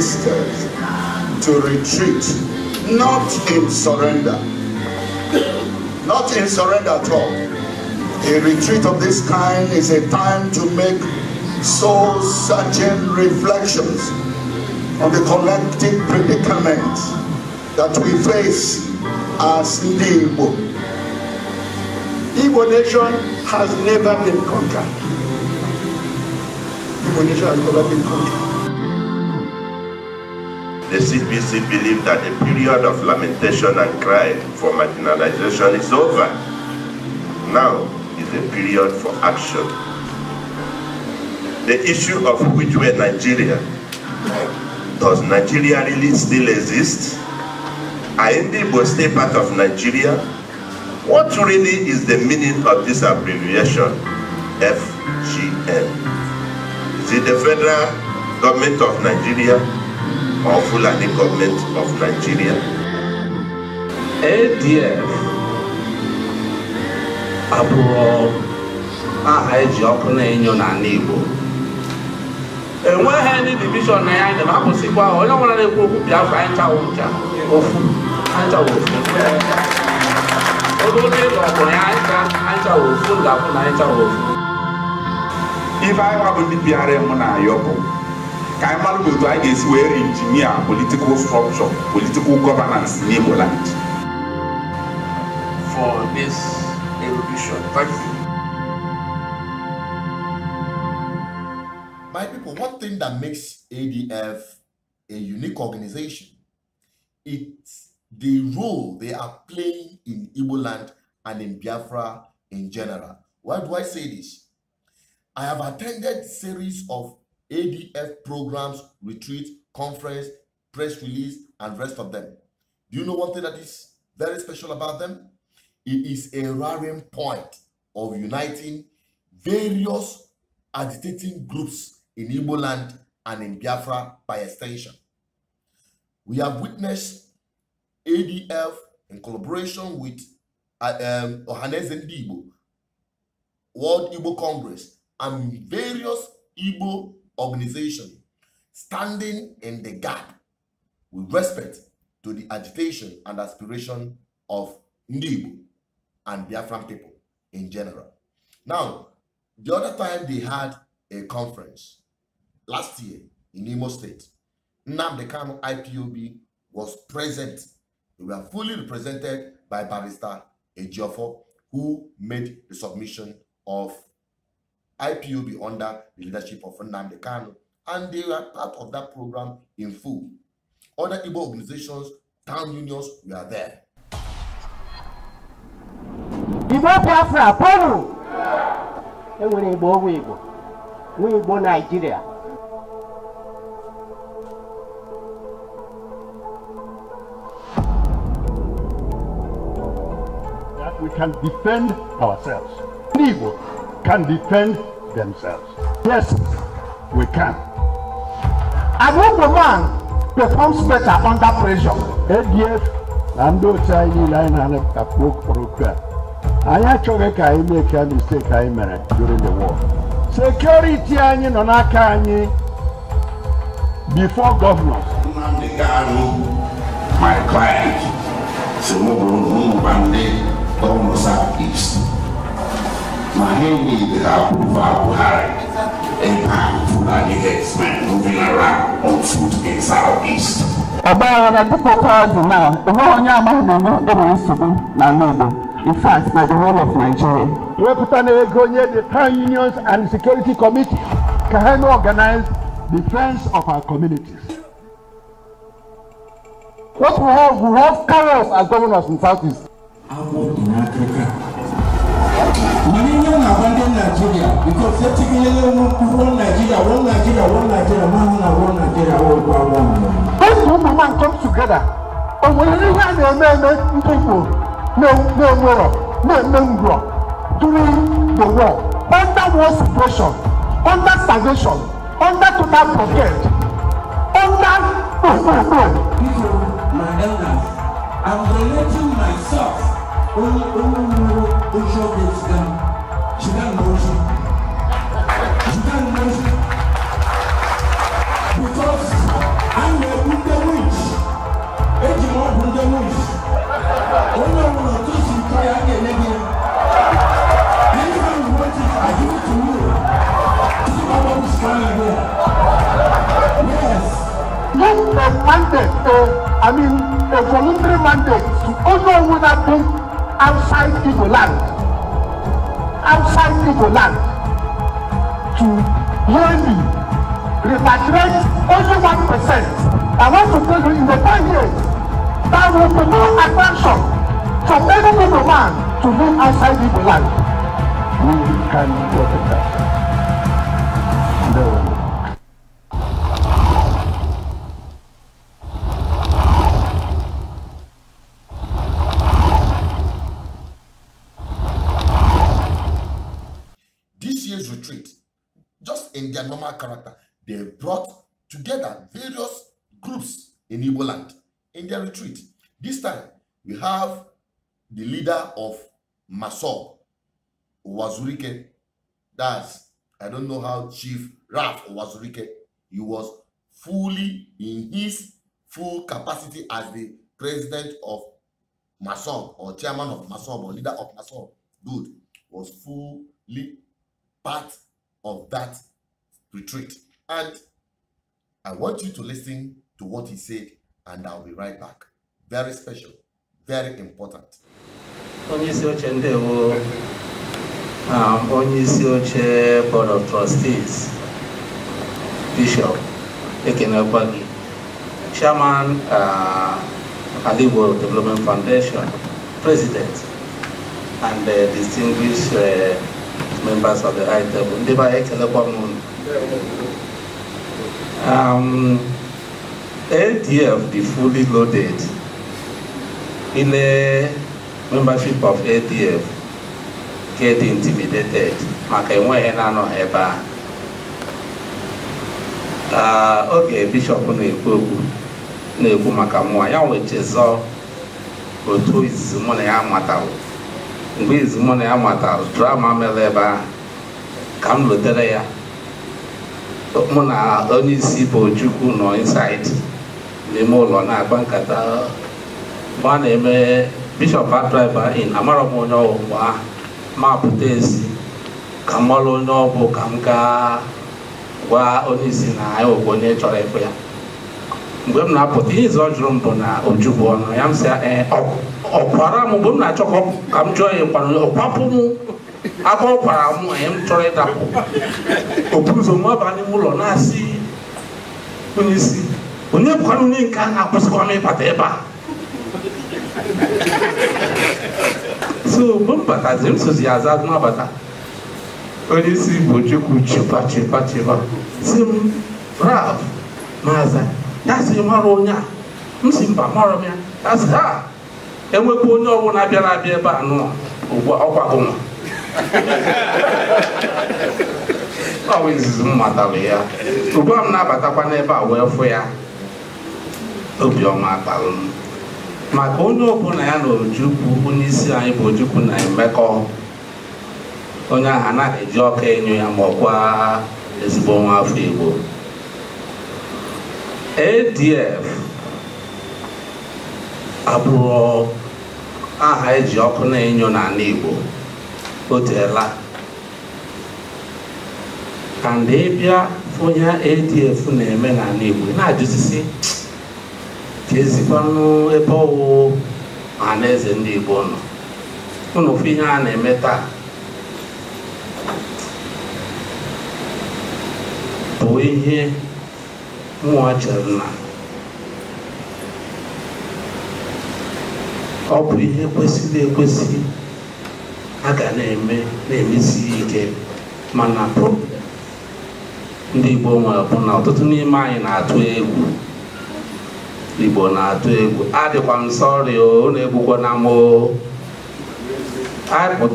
sisters to retreat, not in surrender. Not in surrender at all. A retreat of this kind is a time to make soul-searching reflections on the collective predicament that we face as the Igbo. Igbo nation has never been conquered. Igbo nation has never been conquered the CBC believe that the period of lamentation and cry for marginalization is over. Now is the period for action. The issue of which were Nigeria. Does Nigeria really still exist? Are Igbo still part of Nigeria? What really is the meaning of this abbreviation, FGM? Is it the federal government of Nigeria or Fulani government of Nigeria. ADF abụrụ aha eji ọkụ na-enyo n'ala Igbo enweghị ndị divishọn na ya njem akwụsịkwa onye ọbụla na-ekwu okwu Biafra anchaghị ncha ofu anchaghị ofu oge ụlọ ọbụla ya ncha anchaghị ofu ga-abụ na anchaghị ofu ife anyị bụ ndị bịara mụ na ayọ Kaimal e Godoy is e where engineer political structure, political governance in Igbo For this erudition, thank you. My people, one thing that makes ADF a unique organization, it's the role they are playing in Igbo land and in Biafra in general. Why do I say this? I have attended series of ADF programs, retreats, conference, press release, and rest of them. Do you know one thing that is very special about them? It is a rallying point of uniting various agitating groups in Igbo land and in Biafra by extension. We have witnessed ADF in collaboration with um, Ohanes and Igbo, World Igbo Congress, and various Igbo organization standing in the gap with respect to the agitation and aspiration of Ndibu and Biafran people in general. Now, the other time they had a conference last year in Imo State, Nnamdi Kanu IPOB was present. They were fully represented by Barrister Ejiofor, who made the submission of IPOB under the leadership of Nnamdi Kanu, and they are part of that program in full. Other Igbo organizations, town unions we are there. Igbo Biafra, Polu! Enwere Igbo ọgwụ Igbo, nwe Igbo Nigeria. That we can defend ourselves. Igbo can defend themselves. Yes, we can. I when the man performs better under pressure. ADF na ndị otu anyị niile anyị na-anụ akpọ okporoko a anyị achọghị ka anyị mee a mistake anyị mere during the war. Security anyị nọ n'aka anyị before governors. Nnamdi Kanu, my client, so mụ bụrụ ụmụ ndị gọvanọ South East. Mahenge is approved by Buhari, a powerful Fulani headsman moving around on foot in Southeast. Ọbaa na dịka ụkọ ọdụ na ụwa onye amaghị na enye ndị nsogbu na Nnedo in fact na the whole of Nigeria. Wepụta na ego nye the town unions and security committee ka ha na-organize defense of our communities. What we have, we have carriers as governors in Southeast. Agwọ dị n'akụkụ Millennium na abandon Nigeria because they're taking a little one Nigeria, one Nigeria, one Nigeria, one Nigeria, one Nigeria, one by Those people man come together. But when you hear the men, people, no, no, no, no, no, no, during the war, under war suppression, under starvation, under total blockade, under People, my elders, I'm relating myself. Oh, oh, Ojo goes down. She got an Ojo. She got Because I'm a Wunda Witch. Eji mo Wunda Witch. Onye ọbụla otu si tọ ya aga eme gị. want to you. See Yes. Give a mandate, uh, I mean a voluntary mandate to Ojo Wunda Witch outside Igbo land, outside Igbo land, to really repatriate only one percent. I want to tell you in the five years, there will be no attraction to any Igbo man to live outside Igbo land. We can protect that. their normal character. They brought together various groups in Igbo land in their retreat. This time, we have the leader of Masob, Wazurike. That's, I don't know how Chief Raf Wazurike, he was fully in his full capacity as the president of Masob or chairman of Masob or leader of Masob. Good was fully part of that retreat. And I want you to listen to what he said, and I'll be right back. Very special, very important. Onyeisi oche ndewo um, oche board of trustees bishop ekenekwa chairman uh, Development Foundation president and uh, distinguished uh, members of the high table ndị Um, ADF, the fully loaded, in a membership of ADF, get intimidated maka enweghị na-anọ ebe a uh, oge bishọp na-ekwu okwu na-ekwu maka mmụọ ya wechezọ otu izizi na ya matalụ mgbe izizi na ya matalụ drama mere ebe ahụ ka m lotere ya mụ na onye isi bụ Chukwu nọ inside n'ime ụlọ na-agba nkata mgbe a na-eme bishọp adriver in amarọ m onye ọwụ mgbe ahụ ma pụta ezi ka m marụ onye ọbụ ka m gaa gwa onye isi na anyị bụ onye chọrọ ịbụ ya mgbe m na-apụta ihe izu ọ jụrụ m bụ na ojubụ ọnụ ya m sị eh, ọkwara m mgbe m na-achọ ka m jụọ ya kwara ọkwapụ m agwọ kwara m anyị m chọrọ ịdapụ oburu ụzọ nwa ba n'ime ụlọ na-asị onye isi onye bụkwana onye nke a na-akwụsịkwa m ịbata ebe a so mgbe m batazi m sozi ya aza n'abata onye isi bụ chukwu chiba chiba chiba si m raf maza ya si mara onye a m si mba marọ m ya ya si ha enwekwa onye ọbụla bịara abịa ebe a nọ ugbu ọkwa gụnwa ọ izizi m matara ya ugbua m na-abatakwa n'ebe a wee fụ ya obiọma kpalụ m maka onye ọbụla ya na ojukwu onye isi anyị bụ ojukwu na emekọ onye ahụ anaghị eji ọka enyo ya ma ọkwa ezigbo nwa afọ igbo adf abụrụ aha eji ọkụ na-enyo n'ala igbo o teela ka mgbe bịa onye adf na-eme n'ala igbo na-ajụsisi ka ezikwanụ ebe ọwụwụ eze ndị igbo nọ ụnụ fụ ihe a na-eme taa bụ ihe nwa chere na ọ bụ ihe kwesịrị ekwesị a ga na-eme na-emesi ike mana ndị Igbo nwere bụ na ọtụtụ n'ime anyị na-atụ egwu Igbo na-atụ egwu adịkwa m sọrị o na na m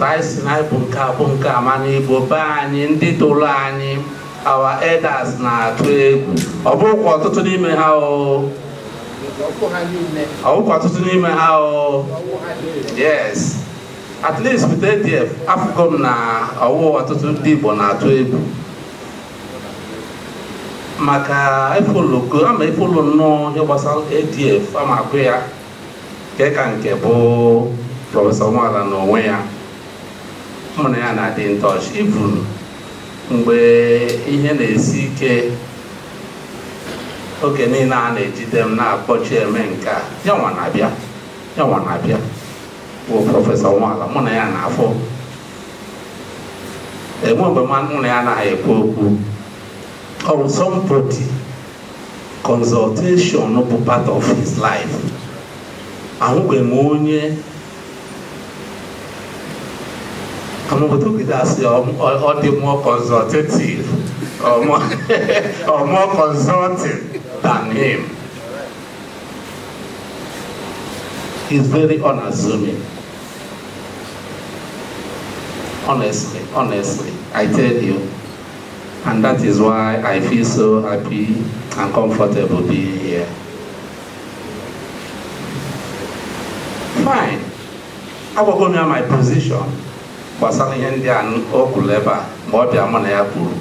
anyị na ịbụ nke abụ nke a mana Igbo be anyị ndị tụrụ anyị awa elders na-atụ egwu ọ bụkwa ọtụtụ n'ime ha o ọ ọtụtụ n'ime ha o at least with ADF afụgo na ọwụwa ọtụtụ ndị Igbo na-atụ egwu maka efoloko ama efolo nnọọ ihe gbasara ADF ama akụ ya nke ka nke bụ prọfesọ nwara na onwe ya mụ na ya na-adị ntọch ivun mgbe ihe na-esi ike oge niile a na-ejide m na-akpọchi eme nke a yanwa na-abịa bụ prọfesọ Nwala mụ na ya na-afọ enwe mgbe mụ na ya anaghị ekwu okwu ọ bụ somebody consultation bụ part of his life ahụghị m onye amaobodo gide asị ọ dị mụọ consultative or more consulting than him. is very unassuming. honestly, honestly, I mm-hmm. tell you. And that is why I feel so happy and comfortable being here. Fine. Agwago m ya my position gbasara ihe ndị a o kwuru ebe a ma ọ bịa mụ na ya kwuru.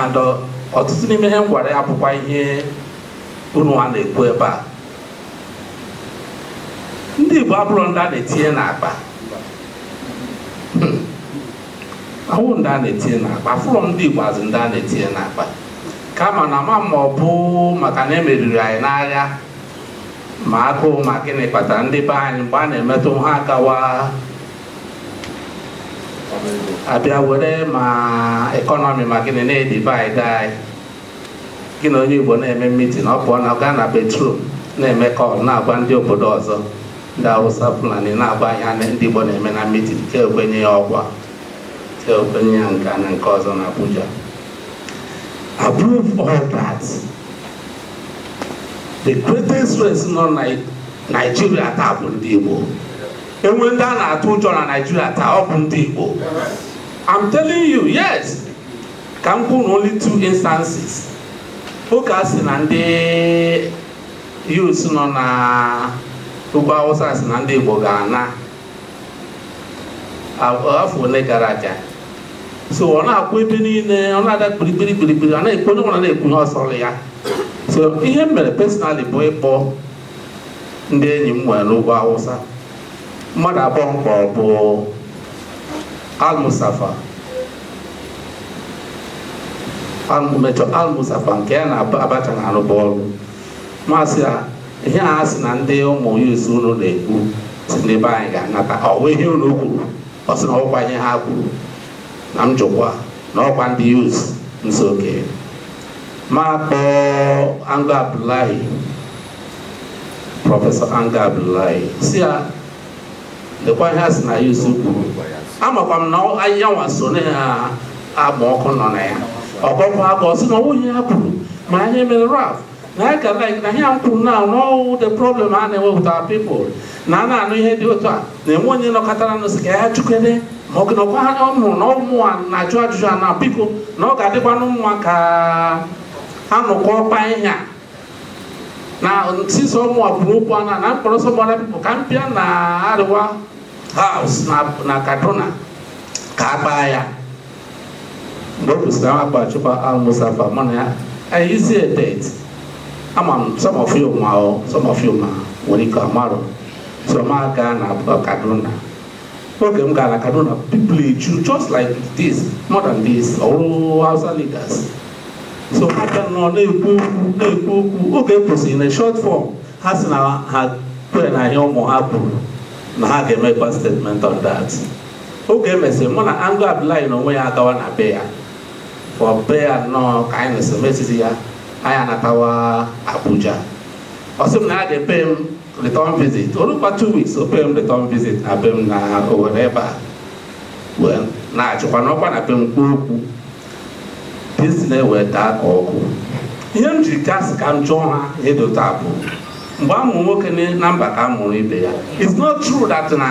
And uh, ọtụtụ n'ime ihe m gwara ya bụkwa ihe unu a na-ekwu ebe a. Ndị Igbo abụrụ ndị a na-etinye n'akpa awụ ndị a na-etinye n'akpa fụrọ ndị Igbo azụ ndị a na-etinye n'akpa kama na ma ma ọ bụ maka na emeriri anyị n'agha ma agụụ ma gịnị kpatara ndị be anyị mgbe a na-emetụ ha akawa abịa were ma ekọnọmi ma gịnị na-edivid anyị gị na onye Igbo na-eme mitin ọ pụọ na gaa na betrum na-eme kọl na-agwa ndị obodo ọzọ ndị awụsa Fulani na-agwa ihe ndị Igbo na-eme na mitin ka ekwenye ya ọgwa so okenye ya nke a na nke ọzọ na approve all that the greatest race nọ Nigeria taa bụ ndị Igbo enwe ndị a na-atụ ụjọ na Nigeria taa ọ bụ ndị Igbo I'm telling you yes ka m kwuru only two instances ụka si na ndị youths nọ na ụgbọ Hausa si na ndị Igbo ga-ana afọ ole gara aga so ọ na-akwụ ebe niile ọ na-ada kpirikpiri kpirikpiri ọ na-ekwu onye nwere na-ekwunye ekwu ọsọ ya so ihe m mere personali bụ ịkpọ ndị enyi m nwere n'ugwu awụsa mmadụ abụọ mkpọrọ bụ almusafa mechọ almusafa nke ya na abacha na arụba ọrụ masị a ihe a ha si na ndị ụmụ yuz unu na-ekwu si n'ebe anyị ga-anata ọ wee ihe unu kwuru ọ sị na ọkwa ihe ha kwuru na njụkwa na ọkwa ndị uz nso ma kpọọ Anga Abdullahi prọfesọ Anga Abdullahi si ya lekwa ihe a sị na ya uz kwuru amakwa m na ahịhịanwa so na ya agba ọkụ nọ na ya ọkọkọ aka ọ sị na onwunye ya kwuru ma anyị mere raf na ya ga like na ihe m kwuru na n'ọwụ the problem a na ewepụta with na a na-anụ ihe dị otu a na-enwe onye nọkọtara nụ si ka ya ma ọ nọkwa ha ọnụ na ụmụ a na-ajụ ajụjụ a na biko na ọ ga-adịkwa n'ụmụa ka ha nọkwa ọkpa a na sisa ụmụ a kwuru okwu ana na mkpọrọ sọgbara bipụ ka mpịa na arịwa haus na kaduna ka a ya mgbe na kaduna oge m gara Kaduna people eju just like this more than this ọrụ oh, Hausa leaders so ha bịa nọ na-ekwu okwu na-ekwu okwu oge kwụsịrị short form ha si na ha kwere na ahịa ụmụ ha kwuru na ha ga-emekwa statement on that oge emesịrị mụ na Ango Abdullahi na onwe ya gawa na be ya for be ya ka anyị na-esemesizi ya anatawa Abuja ọ na ya ga-epe return visit o rukwa two weeks return visit na be m na Owerri ebe a na-achịkwa na be m kwuo okwu pizina ewee daa ihe m jiri gasị ka m jụọ ha edota mgbe amụ nwoke na mba ka ibe ya it's not true that na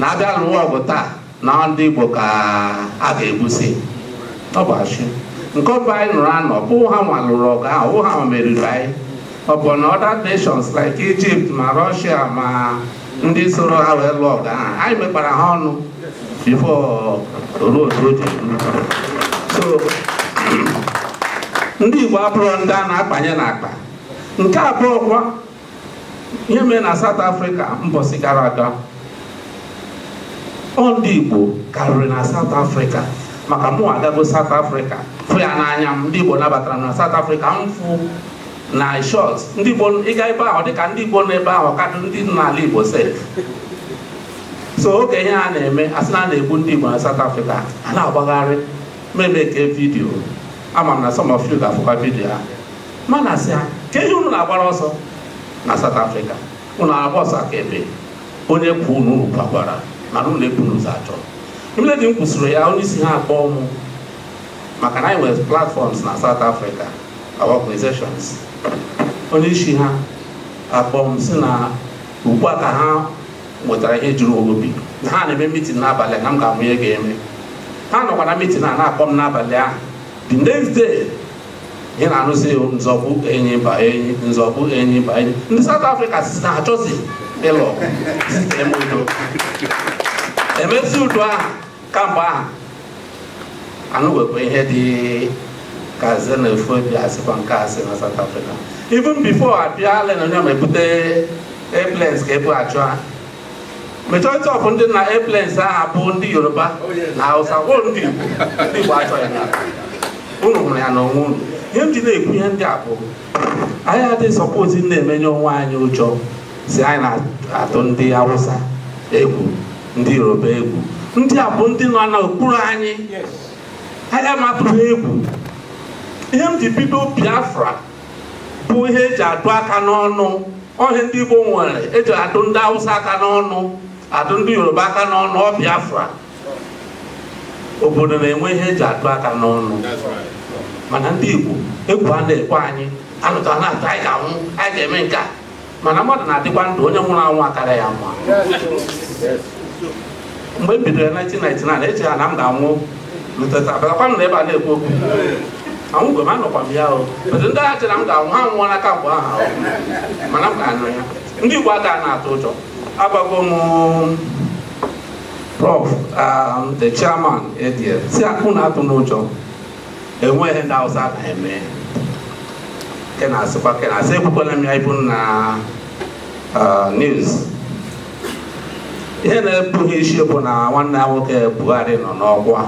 na-abịa n'ụwa ọgụ taa na ka a ga nke anyị nụrụ anọ ọ ha nwa lụrụ ọgụ ahụ meriri anyị ọ bụ na other nations like Egypt ma Russia ma ndị soro ha wee lụọ ọgụ anyị mekpara ha ọnụ before ruo so ndị Igbo abụrụ ndị a na-akpanye n'akpa nke abụọ kwa ihe mere na South Africa mbọsị gara aga ọ ndị Igbo karịrị na South Africa maka mụ agago South Africa fụ ya n'anya m ndị Igbo nabatara na South Africa m fụ na short ndị Igbo ịga ebe ahụ dịka ndị Igbo ebe ahụ kadụ ndị n'ala Igbo set so oge ihe a na-eme asị na a na-egbu ndị Igbo na South Africa a na-agbagharị meme e vidio vidiyo ama m na some of ga-afụkwa vidio ha mana asị ha ka ihe unu na-agbara ọsọ na South Africa unu agba ọsọ akaebe onye kwu unu unu kwagwara mana unu eburu n'ụzọ achọ imeledi m kwụsịrị ya onye isi ha akpọọ m maka na anyị nwere platfọms na South Africa organizations onye isi ha akpọ si na ugbu a ka ha nwetara ihe juru obi na ha na-eme mitin n'abalị na m ga-amụ ihe ga-eme ha nọkwa na mitin a na-akpọ m n'abalị ahụ the next day ihe na-anụzi nzọbụ enyi ba enyi nzọbụ enyi ba enyi ndị South Africa si na achọzi ịlụ udo emezi udo ahụ kamgbe ahụ anụ wekwa ihe dị kazin efu bịa sikwa nke ase si na South Africa even before abịa lenonye ma ebute airplanes ka ebu achụ majority of ndị na airplanes ahụ bụ ndị Yoruba oh, na Hausa wo ndị Igbo ndị Igbo achọghị ya unu hụrụ ya n'onwe unu ihe m ji na-ekwu ihe ndị a bụ anyị adịghị sọpozi na-emenye onwe anyị ụjọ si anyị na-atụ ndị Hausa egwu ndị Yoruba egwu ndị a bụ ndị nọ n'okpuru anyị anyị amatụghị egwu ihe m ji bido Biafra bụ ihe eji adụ aka n'ọnụ ọhịa ndị Igbo nwere eji adụ ndị awụsa aka n'ọnụ adụ ndị Yoruba aka n'ọnụ ọ Biafra obodo na-enwe ihe eji adụ aka n'ọnụ mana ndị Igbo egwu a na-ekwe anyị anụta na atụ anyị ga-anwụ anyị ga-eme nke mana mmadụ na-adịkwa ndụ onye nwụrụ anwụ akara ya mma mgbe m e bidoro 1999 echeghara na m ga-anwụ lụtata na ebe a na-ekwu okwu anwụ mgbe m anọkwa m ya o otu ndị agha chere m ga-anwụ ha nwụọ n'aka mgbe ahụ mana m ga anụ ya ndị Igbo aka na-atụ ụjọ agbago m prof the chairman edie si akpụ na-atụ n'ụjọ enweghị ndị awụsa na-eme kenasịkwa kenasị ekwukwala m ya ibu na news ihe na-ebughị isi bụ na nwanne ya nwoke Buhari nọ n'ọkwa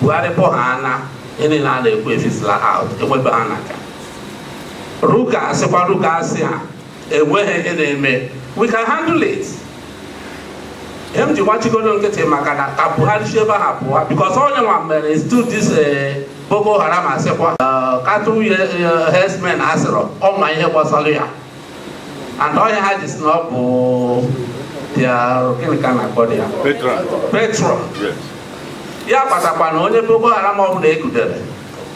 Buhari pụghana ihe niile na-ekwu efisila out enwebe ha ruka sịkwa ruka asị ha enweghị ị na-eme we can handle it ihe m ji gbachigodo nkịtị maka na ka buhari si ebe ha pụọ because onye nwa mere stu dis eh, boko haram asịkwa eh, katụnye eh, hesmen asịrọ ọma ihe gbasara ya and onye ha ji si na ọ bụ their gịnị ka na-akpọ ya patron ya kpatakwa na onye boko haram ọbụla bụla gudere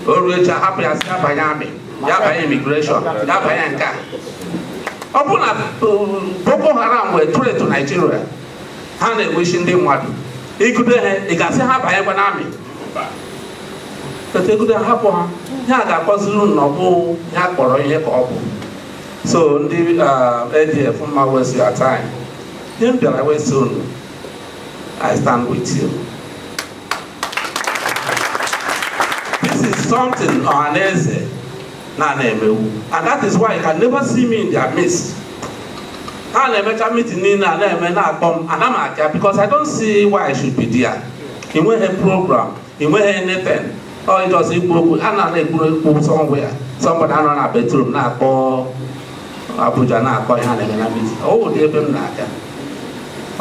o ruo echi ahapụ ya si abanye amị ya banye imigreshọn ya banye nke a ọ bụ na boko haram wee tụrụ etu naijiria ha na enwechi ndị mmadụ igude ha ị ga ga-asị ha banyekwa na amị etegude hapụ ha ya ga-akpọziri unu ọbụ ya kpọrọ ihe ka ọ bụ so ndị adf mma wesi your ihe m bịara wesi unu i stand with you something ọhaneze na na-emewu and that is why you can never see me in their midst ha na-emecha meeting niile a na-eme na-akpọ m ana m because I don't see why I should be there ị nweghị program ị nweghị anything ọ ịjọzi ikwu okwu a na na-ekwu ekwu somewhere somebody anọ na bedroom na-akpọ Abuja na-akpọ ihe a na-eme na meeting ọ ụdị ebe m na-aga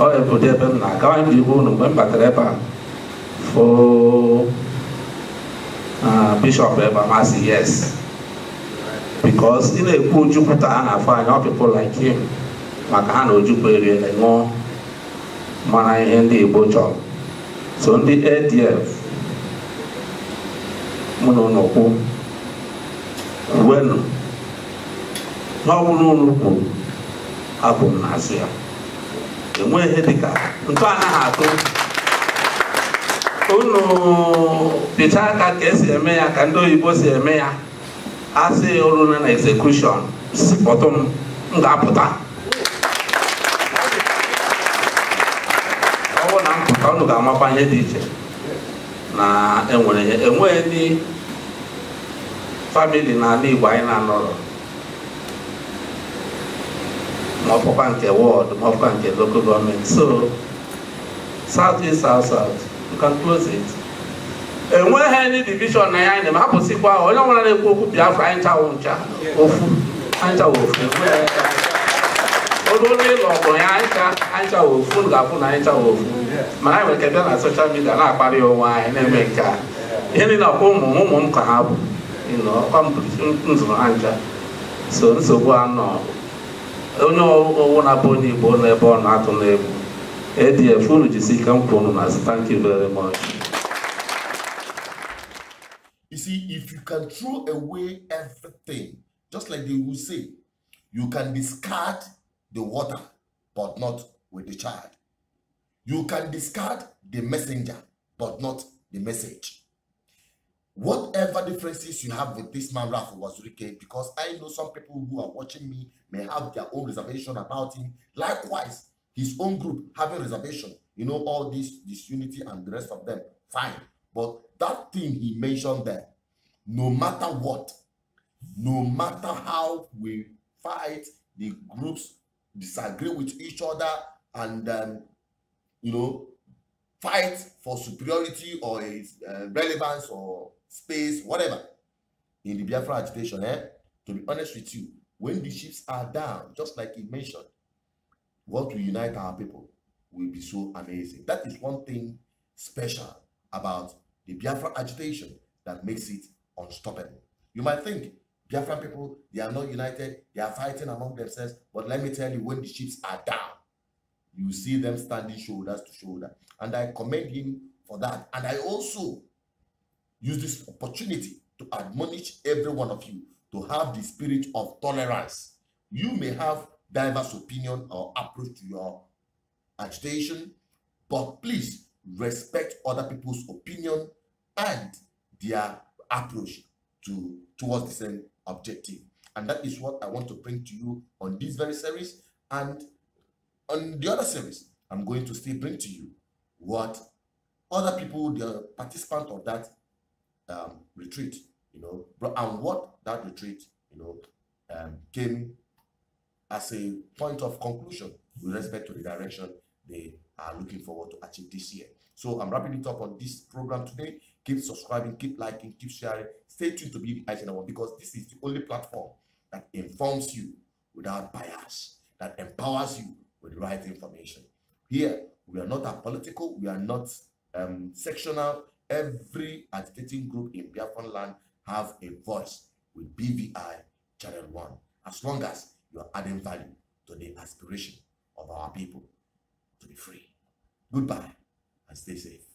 ọ bụ ụdị ebe m na-aga onye m ji hụ mgbe m batara ebe a foo Ah, Bishọp Ebamasi yes because ị na-ekwu Ojukwu a na-afọ anya ọ like him maka ha na Ojukwu eriele ṅụọ mara ihe ndị Igbo chọrọ so ndị ADF mụ na ụlọ wenu n'ọwụrụ ụlọ abụ m na azụ ya enweghị ihe dịka ntụ anaghị atụ unu pịcha aka ka esi eme ya ka ndị oyibo si eme ya asị oruna na execution si m m ga-apụta ọ na mpụta pụta unu ga-amakwa ihe dị iche na enwere ya enweghị ndị famili n'ala Igbo anyị na-anọrọ ma nke wọdụ ma nke loko gọọmenti so south east south south can close it enweghị ndị divishọn na ya anyị na hapụsịkwa onye ọbụla na-ekwu okwu biafra anyị chawụ ncha ofu anyị chawụ ofu ogo onye ụlọ ọgụ ya anyị chawụ ofu ga-afụ na anyị chawụ ofu mana anyị nwere kebịa na soshal midia na-akparị onwe anyị na-eme nke a ihe niile ọkwa ụmụ ụmụ m ka ha bụ nzụrụ ha ncha so nsogbu anọ onye ọwụwa na-abụ onye igbo n'ebe ọ na-atụ n'egwu ɛdeɛ fone gye sika mpɔ no nase thank you very much You see, if you can throw away everything, just like they will say, you can discard the water, but not with the child. You can discard the messenger, but not the message. Whatever differences you have with this man, Ralph Wazurike, because I know some people who are watching me may have their own reservation about him. Likewise, his own group having reservation, you know, all this disunity and the rest of them, fine. But that thing he mentioned there, no matter what, no matter how we fight, the groups disagree with each other and, um, you know, fight for superiority or uh, relevance or space, whatever. In the Biafra agitation, eh? to be honest with you, when the ships are down, just like he mentioned, what will unite our people will be so amazing. That is one thing special about the Biafra agitation that makes it unstoppable. You might think Biafra people, they are not united, they are fighting among themselves, but let me tell you, when the ships are down, you see them standing shoulders to shoulder. And I commend him for that. And I also use this opportunity to admonish every one of you to have the spirit of tolerance. You may have diverse opinion or approach to your agitation, but please respect other people's opinion and their approach to towards the same objective. And that is what I want to bring to you on this very series. And on the other series, I'm going to still bring to you what other people, the participant of that um, retreat, you know, and what that retreat, you know, um, came as a point of conclusion with respect to the direction they are looking forward to achieve this year. So I'm wrapping it up on this program today. Keep subscribing, keep liking, keep sharing. Stay tuned to be One because this is the only platform that informs you without bias, that empowers you with the right information. Here, we are not a political, we are not um, sectional. Every agitating group in Biafran land have a voice with BVI Channel 1. As long as you are adding value to the aspiration of our people to be free. Goodbye and stay safe.